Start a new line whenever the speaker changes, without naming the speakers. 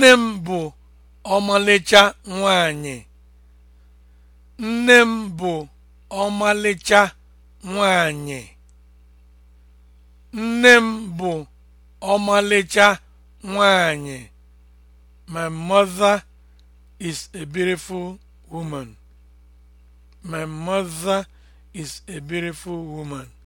Nne m bụ ọmalịcha nwanyị. Nne m bụ ọmalịcha is a beautiful woman. My mother is a beautiful woman.